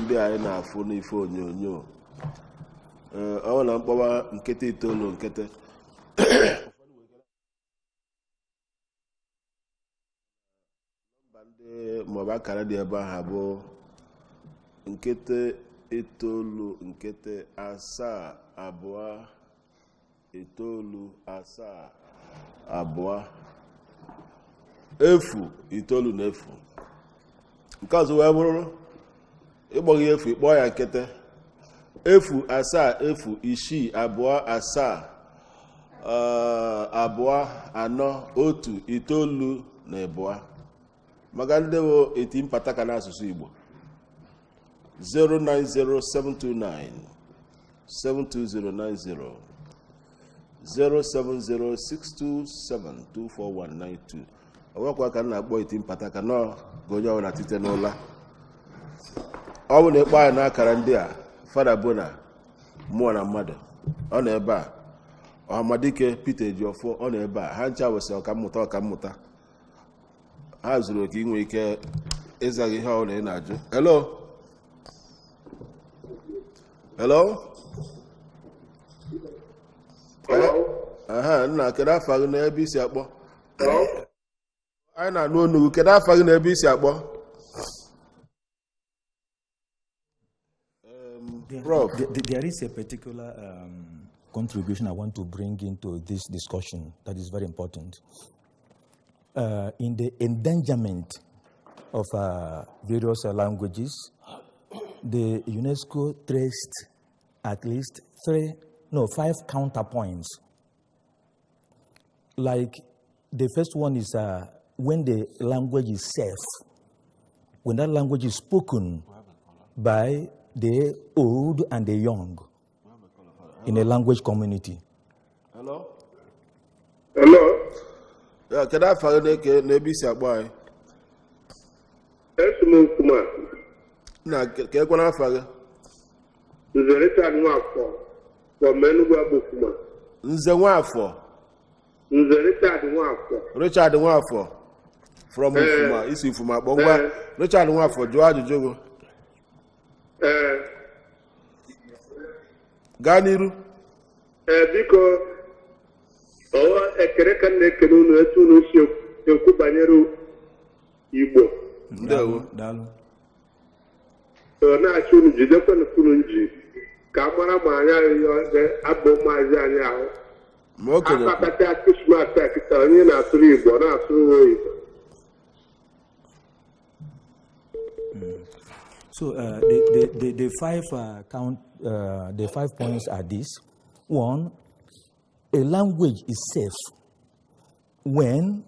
ndị anyị na-afụ n'ife onyonyo ọ bụ na mkpọwa nkịta itoolu nkịtị maọbụ akara dị ebe ahụ bụ nkịtị itoolu nkịtị asaa abụọ itoolu asaa abụọ efu itoolu na efu nke ọzọ wee bụrụ ịkpọghị efu ịkpọ ya nkịtị efu asaa efu isii abụọ asaa eh, abụọ anọ otu itoolu na abụọ maka ndị bụ eti mpata ka n'asụsụ Igbo 090729 72090 07062724192 ọnwekwa ka na-akpọ iti mpata ka nọ ka onye na tite n'ụla ọ bụ na ịkpọ anyị n'akara ndị a fada bụ na mmụọ na mmadụ ọ nọ ebe a ọhamadike peter ejiofọ ọ nọ ebe a ha ncha wesị ọkammụta mmụta ha zuru oke inwe ike ịzaghị ihe ọbụla ị na-ajụ nna kedu afọ gị n'ebe isi akpọ anyị na-anụ onugbu kedu gị na ebe isi akpọ um, there is a particular um, contribution I want to bring into this discussion that is very important. Uh, in the endangerment of uh, various uh, languages, the UNESCO traced at least three, no, five counterpoints. Like the first one is uh, when the language is safe, when that language is spoken by the old and the young in a language community. Hello? Hello? Yeah, can I follow the ABC Agbay? Yes, Mokuma. Na, can I find? follow? Nzerita Nwafọ, from Menugwa Bukuma. are Nwafọ? Nze Richard Nwafọ. Richard Nwafọ. from Nfuma eh. isi Nfuma kpọ ngwa eh. Richard Nwafọ jụọ ajụjụ gị eh. gaa n'iru biko ọwa ekele ka na-ekele unu etu unu si ekwu banyere Igbo ndewo na-achị unu jidekwana unu nji ka a mara ma anyị anyị e, abụ maazị anyị ahụ akpakata akụsụmata kịta onye na-asụrụ Igbo na-asụrụ oyibo So uh, the, the, the, the, five uh, count, uh, the five points are this. One, a language is safe when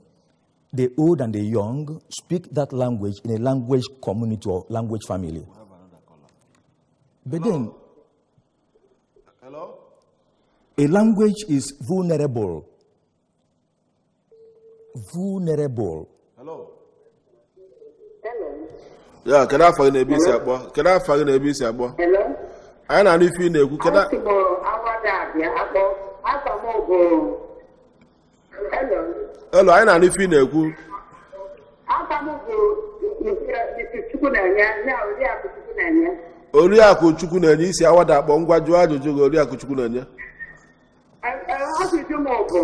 the old and the young speak that language in a language community or language family. But Hello? then, Hello? a language is vulnerable. Vulnerable. Hello? ya kedu afọ gị na-ebe isi akpọ kedu afọ gị na-ebe isi akpọ anyị na-anụ ife ị na-ekwu elu anyị na-anụ ife ị na-ekwu oriakụ chukwu na-enye isi awada akpọ ngwa jụọ ajụjụ gị oriakụ chukwu na-enye okwu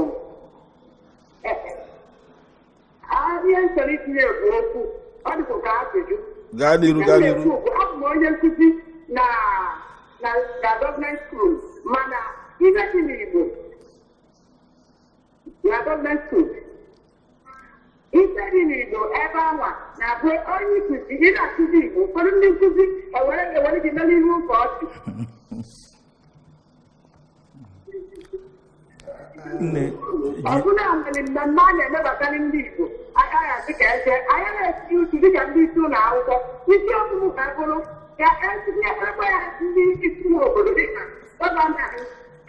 ọ dịkwa ka ajụjụ gaa n'iru gaa n'iru abụ m onye nkụzi na na gọọmenti skul mana ibe dị n'Igbo na gọọmenti skul ife dị n'Igbo ebe anwa na-abụ onye nkụzi ị na-akụzi Igbo ụfọdụ ndị nkụzi ewere e gị mere ihu ka ọchị ọbụla nwere mmemme a na-emebatara ndị Igbo aka ya dịka eze anya na-esi uchu dịka ndị isi ụlọ akwụkwọ isi ọmụmụ ka bụrụ ka etinyeekwa ya ndị isi obodo dịka gọvanọ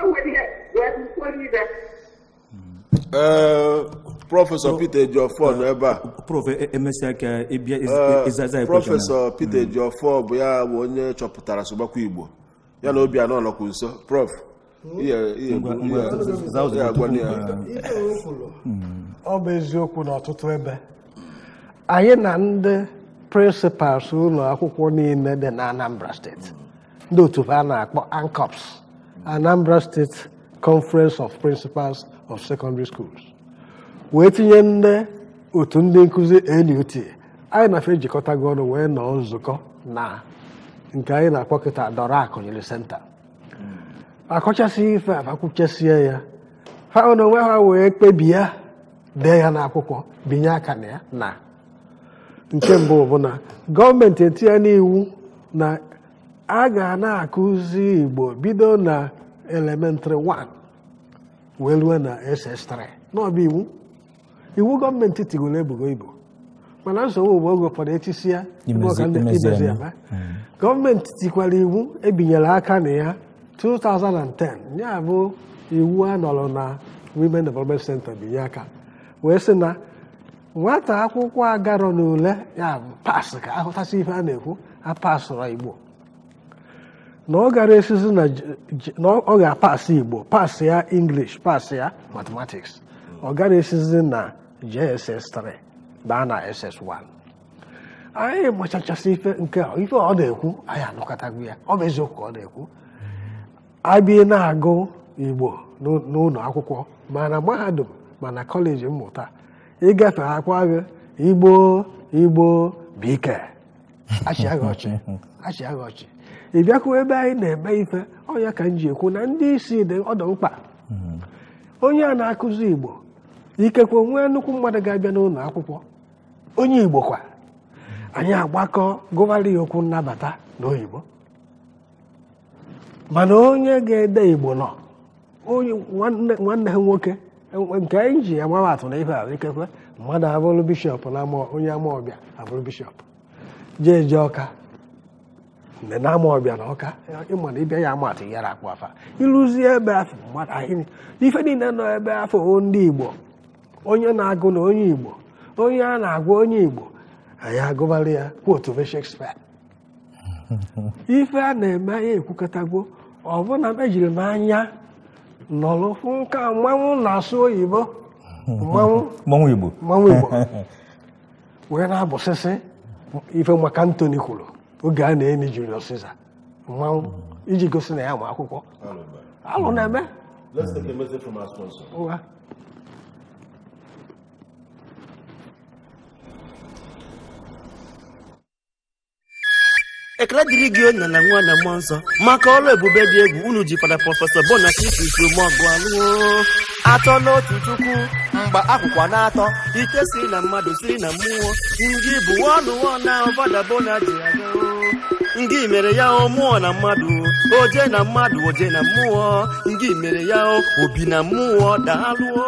ewere ihe wee kwuo ibe. prọfesọ Peter Ejiofor nọ ebe a prọfesọ e, Peter hmm. Ejiofor bụ ya bụ onye chọpụtara sụgbakwa Igbo ya na Obianọ nọkwu nso prof ọ bụ eziokwu n'ọtụtụ ebe anyị na ndị prịnsịpals ụlọ akwụkwọ niile dị na Anambra steeti ndị otu a na-akpọ ANCOPS Anambra Steeti Conference of Principals of Secondary Schools wee tinye ndị otu ndị nkụzi NUT anyị na ejikọta ejikọtago ọnụ wee nọọ nzukọ na nke anyị na-akpọ kịta dọrọ akụnyere senta akọchasị ife a akwụchasie ya ha na onwe ha wee kpebie ya dee ya n'akwụkwọ binye aka na ya na nke mbụ bụ na gọọmenti etinye n'iwu na a ga na-akụzi Igbo bido na elementịrị 1 wee rue na SS3 n'ọbụ iwu iwu gọọmenti tigoro ebugo Igbo mana nsogbu bụ oge ụfọdụ echisi ya gọọmenti tikwara iwu ebinyere aka na ya 2010 ya bụ iwu a nọrọ na Women Development Center binye aka wee sị na nwata akwụkwọ agarọ n'ule ya bụ pas ka ahụtasị ihe a na-ekwu apasụrụ Igbo na ọ gara esizi na ọ apasị Igbo pas ya English pas ya mathematics ọ gara esizi na gss 3 baa na SS1 anyị machachasị ife nke ife ọ na-ekwu anyị anụkọtago ya ọ bụ eziokwu ka ọ na-ekwu abịa na-agụ igbo n'ụlọ akwụkwọ mana mahadum mana kọleji mmụta ịgafe akwa gị igbo igbo bụ ike ọchị ị bịakwu ebe anyị na-eme ife ọnya ka m ji ekwu na ndị isi dị ọdọ mkpa mm-hmm. onye a na-akụzi igbo ikekwe nwee nnukwu mmadụ ga-abịa n'ụlọ akwụkwọ onye igbo kwa anyị agbakọ gụgharị ya okwu nnabata n'oyibo mana onye ga-ede igbo nọ nwanne ha nwoke nke anyị ji atụ na ife a ikekwe mmadụ abụrụ bishọp na onye amaọbịa abụrụ bishọp jee je ọka mgbe na amaọbịa na ọka ịma na ịbịa ya amatụ akpụ afa ịrụzie ebe afọ mmadụ ife niile nọ ebe afọ ndị igbo onye na-agụ na onye igbo onye a na-agwa onye igbo anyị agụbara ya kwotu Shakespeare ife a na-eme anyị ekwukọtago ọbụna mejiri m anya nọrọ nka mmanwụ na-asụ oyibo hmm. mmanwụ igbo wee na-abụsịsị ife maka ntoni kwuru oge a na eme Julius ọsịsa. mmanwụ hmm. iji gosi na ya ma akwụkwọ alụ na-eme ekele dịrị gị onye na nwa na mmụọ nsọ maka ọrụ ebube dị egwu unu ji fada prọfesọ Bona Christ mọgụ alụọ atọ n'otu chukwu mgba akwụkwọ na-atọ ike si na mmadụ si na mmụọ ndị bụ ọnụ na ọbada Bona ji ndị mere ya o mmụọ na mmadụ oje na mmadụ oje na mmụọ ndị mere ya obi na mmụọ daalụọ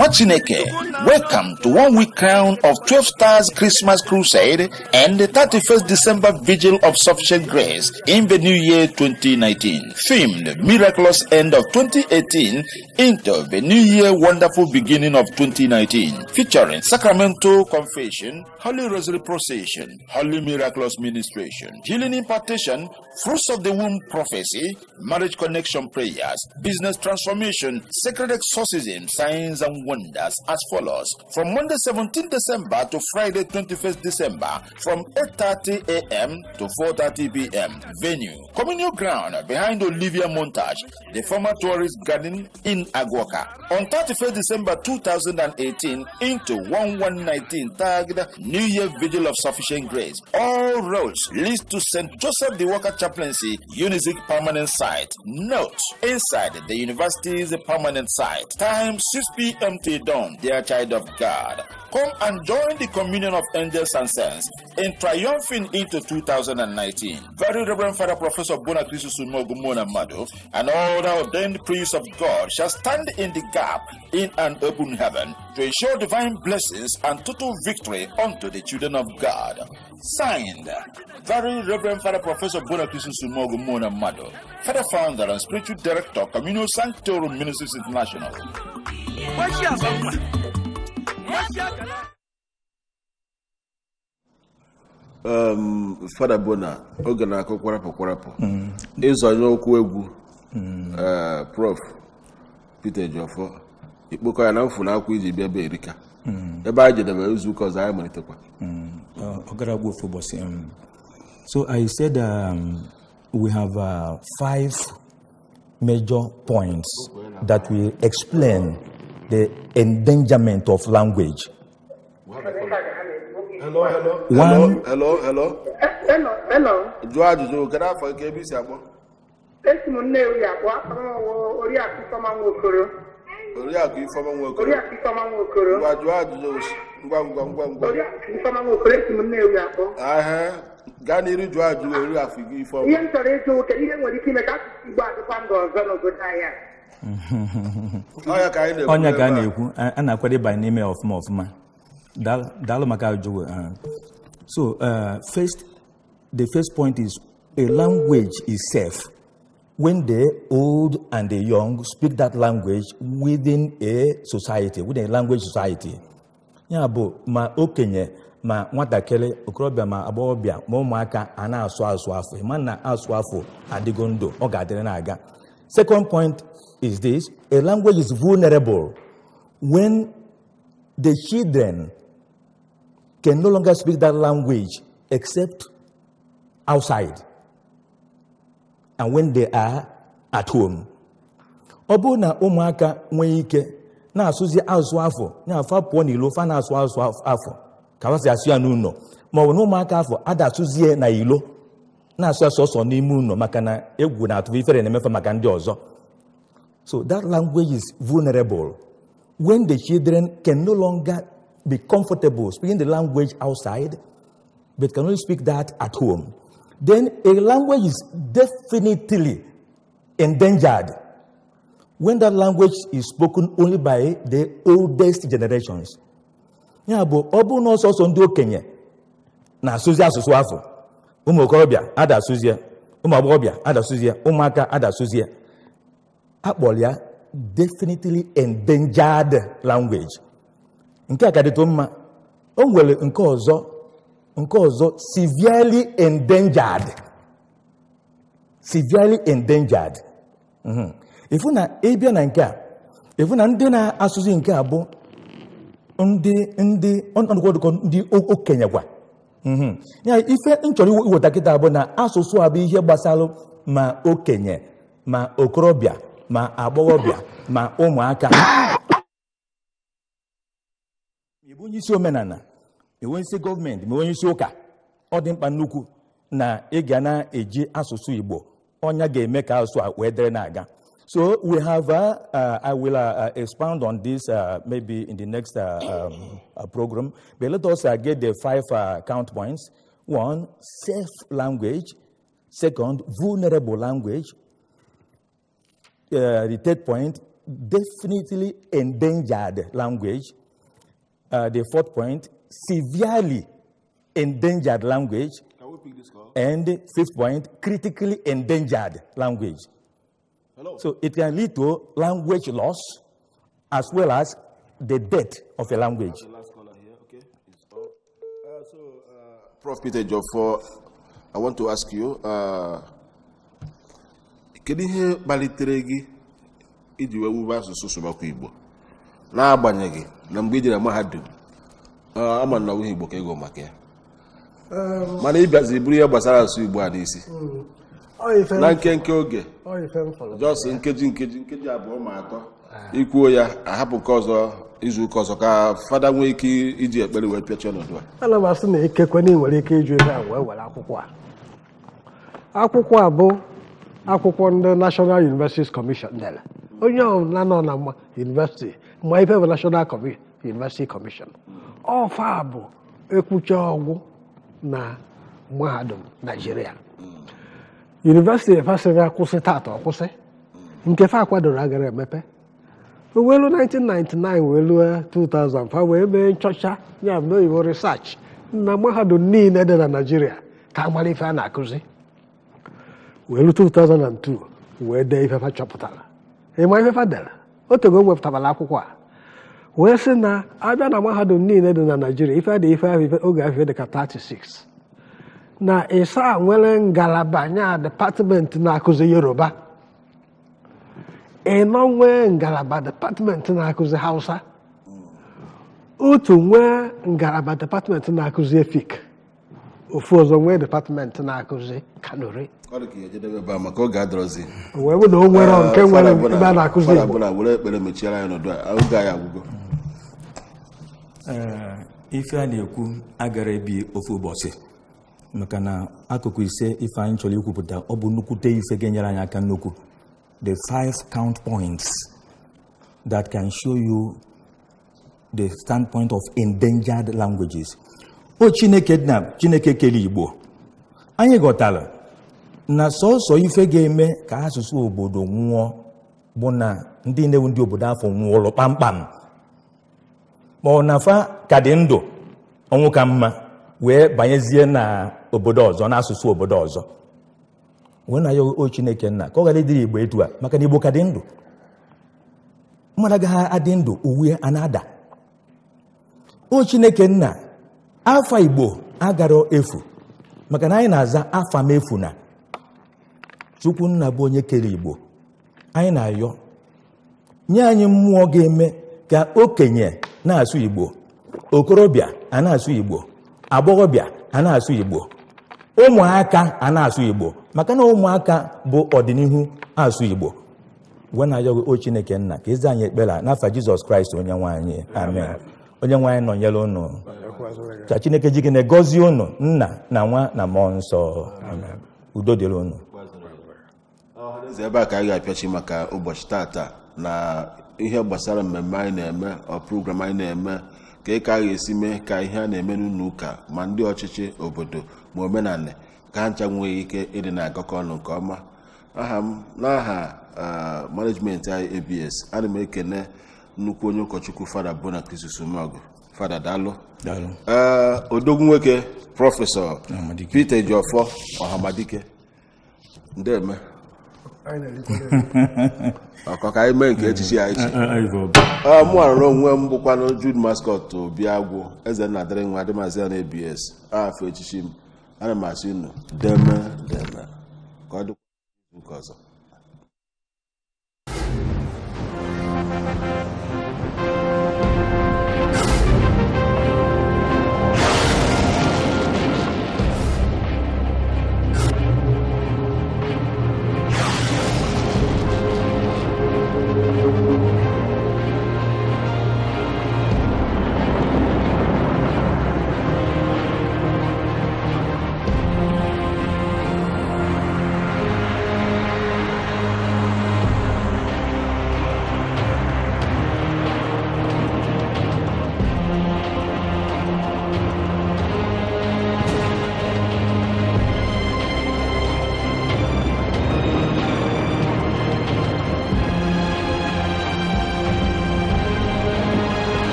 nwa welcome to one week crown of 12 stars Christmas crusade and the 31st December vigil of sufficient grace in the new year 2019 themed miraculous end of 2018 into the new year wonderful beginning of 2019 featuring sacramental confession holy rosary procession holy miraculous ministration healing impartation fruits of the womb prophecy marriage connection prayers business transformation sacred exorcism signs and wonders as follows. From Monday 17 December to Friday 21st December, from 8.30 a.m. to 4.30 p.m. Venue, communal ground behind Olivia Montage, the former tourist garden in Aguaca. On 31st December 2018 into 1119 tagged New Year Vigil of Sufficient Grace. All roads lead to St. Joseph the Walker Chaplaincy Unizik permanent site. Note, inside the university's permanent site. Time 6 p.m. Humphrey Dunn, dear child of God, come and join the communion of angels and saints in triumphing into 2019. Very Reverend Father Professor Bonakrisu Sumogumona Madu and all the ordained priests of God shall stand in the gap in an open heaven to ensure divine blessings and total victory unto the children of God. Signed, Very Reverend Father Professor Bonakrisu Sumogumona Madu, Father Founder and Spiritual Director, Communal Sanctorum Ministries International. Ehm, fada bona oge na-akụ kwarapụ kwarapụ ịzọnye okwu egwu ehm, prof peter jọfọ ikpokọ ya na mfu na akwa iji bịa be erika hmm. ebe anyị jedebe izuụka ọzọ anyị malitekwa hmm. um, so i said um, we have uh, five major points that we explain the endangerment of language. Hello, hello. hello, hello. Hello, hello. onye ka a na-ekwu a na-akwado ịbanye n'ime ọfụma ọfụma daalụ maka ajụjụ uh, so uh, first the first point is a language is safe when the old and the young speak that language within a society within a language society ya bụ ma okenye ma nwatakịrị okorobịa ma agbọghọbịa ma ụmụaka a na-asụ asụ afọ ma na asụ afọ adịgo ndụ ọ ga-adịrị na-aga second point is this a language is vulnerable when the children can no longer speak that language except outside and when they are at home. ọ bụrụ na ụmụaka nwee ike na-asụzi asụsụ afọ na-afọ pụọ n'ilo fa na-asụ azụ afọ ka ha si asụ ya n'ụlọ bụ na ụmụaka afọ ada asụzie na ilo na-asụ asụ ọsọ n'ime ụlọ maka na egwu na-atụ ifere na-emefe maka ndị ọzọ So that language is vulnerable. When the children can no longer be comfortable speaking the language outside, but can only speak that at home, then a language is definitely endangered when that language is spoken only by the oldest generations. Ya but ọ bụrụ na ọsọsọ ndị okenye na-asụzi asụsụ afọ ụmụ okorobịa adasụzie ụmụ agbọghọbịa Umaka, Ada adasụzie akpọrọ ya definitely endangered language nke a ka dịtụ mma o nwere nke ọzọ nke ọzọ severely endangered severely endangered ifu mhm. na ịbịa na nke a ifu na ndị na-asụzi nke a bụ ndị ndị ọnọdụkọ ndị okenye gwa mhm. ya ife nchọrọ iweta kịta bụ na asụsụ a bụ ihe gbasara ma okenye ma okorobịa ma agbọghọbịa ma ụmụaka ịbụ onye isi omenala ịbụ gọọmenti ma onye isi ụka ọ dị mkpa nnukwu na ị ga na-eji asụsụ Igbo ọnya ga-eme ka asụsụ a wee dịrị na-aga so we have uh, I will uh, uh on this uh, maybe in the next uh, um, program but let us get the five count points one safe language second vulnerable language uh, the third point, definitely endangered language. Uh, the fourth point, severely endangered language. And fifth point, critically endangered language. Hello. So it can lead to language loss as well as the death of a language. Okay. Uh, so, uh, Prof. Peter Joffor, I want to ask you. Uh, kedu ihe kpalitere gị iji wee wube asụsụ sụbakwa igbo n'agbanyeghị na mgbe ị jere mahadum ama na ọbụghị igbo ka ego maka ya um, mana ị buru ihe gbasara asụsụ igbo a n'isi hmm. na nkenke oge jos nkeji nkeji nkeji abụọ ma atọ ikwuo ya ahapụ nke ọzọ izu ụka ọzọ ka fada nwee ike iji ekpere wee pịachie ọnọdụ a ana m asị na ikekwe na ị nwere ike iju ebe a wee were akwụkwọ a akwụkwọ a bụ akwụkwọ ndị National Universities Commission dere onye ọbụla nọ na university ma ife bụ National University Commission ọfa bụ ekwucha ọgwụ na mahadum Naijiria yunivesiti efesịghị akwụsị tata ọkwụsị nke fa akwadoro agara emepe elu 1999 welu 2005 wee mee nchọcha ya bụ oyibo research na mahadum niile dị na Naijiria ka amara ife a na-akụzi were 2002 wee dee ifefa chọpụtara ịma ifefa dere otego wepụtabala akwụkwọ a wee sị na abịa na mahadum niile dị na naijiria ife dị ife ahụ oge ahụ dị ka 36 na ịsa nwere ngalaba nya depatmenti na-akụzi yoruba ịnọ nwee ngalaba depatmenti na-akụzi hausa otu nwee ngalaba depatmenti na-akụzi efik ofu ọzọ nwee depatmenti na-akụzi kanuri maka ga adọrọzi wee na o ah, nke nwere bụla were ekpere n'ọdụ eh, ife a na-ekwu agara ebi ofu ụbọchị maka na akụkụ ise ife anyị chọrọ ikwupụta ọ bụ nnukwute ife ga-enyere anyị aka nnukwu the five count points that can show you the standpoint of endangered languages o chineke na chineke kere igbo anyị ghọtara na sọsọ ife ga-eme ka asụsụ obodo nwụọ bụ na ndị na-ewu ndị obodo afọ nwụọlụ kpamkpam ma ọ na fa ka dị ndụ ọnwụ ka mma wee banyezie na obodo ọzọ na asụsụ obodo ọzọ wee na ya o chineke nna ka ọ ghara ịdịrị igbo etu a maka na igbo ka dị ndụ mmadụ agaghị adị ndụ uwe a na-ada o chineke nna afọ igbo agarọ efu maka na anyị na-aza afọ m efu na chukwu nna bụ onye kere igbo anyị na-ayọ nye anyị mmụọ ga-eme ka okenye na-asụ igbo okorobịa a na-asụ igbo agbọghọbịa a na-asụ igbo ụmụaka a na-asụ igbo maka na ụmụaka bụ ọdịnihu asụ igbo gwe na-ayọghị o chineke nna ka ịza anyị ekpere n'afa jizọs kraịst onye nwaanyị amen onye nwaanyị nọnyere ụnụ ka chineke ji gị na nna na nwa na mmụọ nsọ udo dịrị unu eze ebe a ka anyị ga-apịachi maka ụbọchị tata na ihe gbasara mmemme anyị na-eme ọ program anyị na-eme ka ị ka a ga-esi mee ka ihe a na-eme n'ụlọ ụka ma ndị ọchịchị obodo ma omenala ka ha ncha nwee ike ịdị na-agakọ ọnụ nke ọma aha m n'aha management abs ana m ekene nnukwu onye ụkọchukwu fada bona krisisumog fada dalụ odogwu nwoke prọfesọ Peter Ejiofor Ọhamadike eme. ọkọ ka anyị mee nke echichi ya echi mụ arụrụ onwe m bụkwanụ Jude Mascot Obi Agwụ eze na dịrị nwa dịmazi ya na ebs afọ echichi m ana m asị unu deme deme ka ọ dịkwa nke ọzọ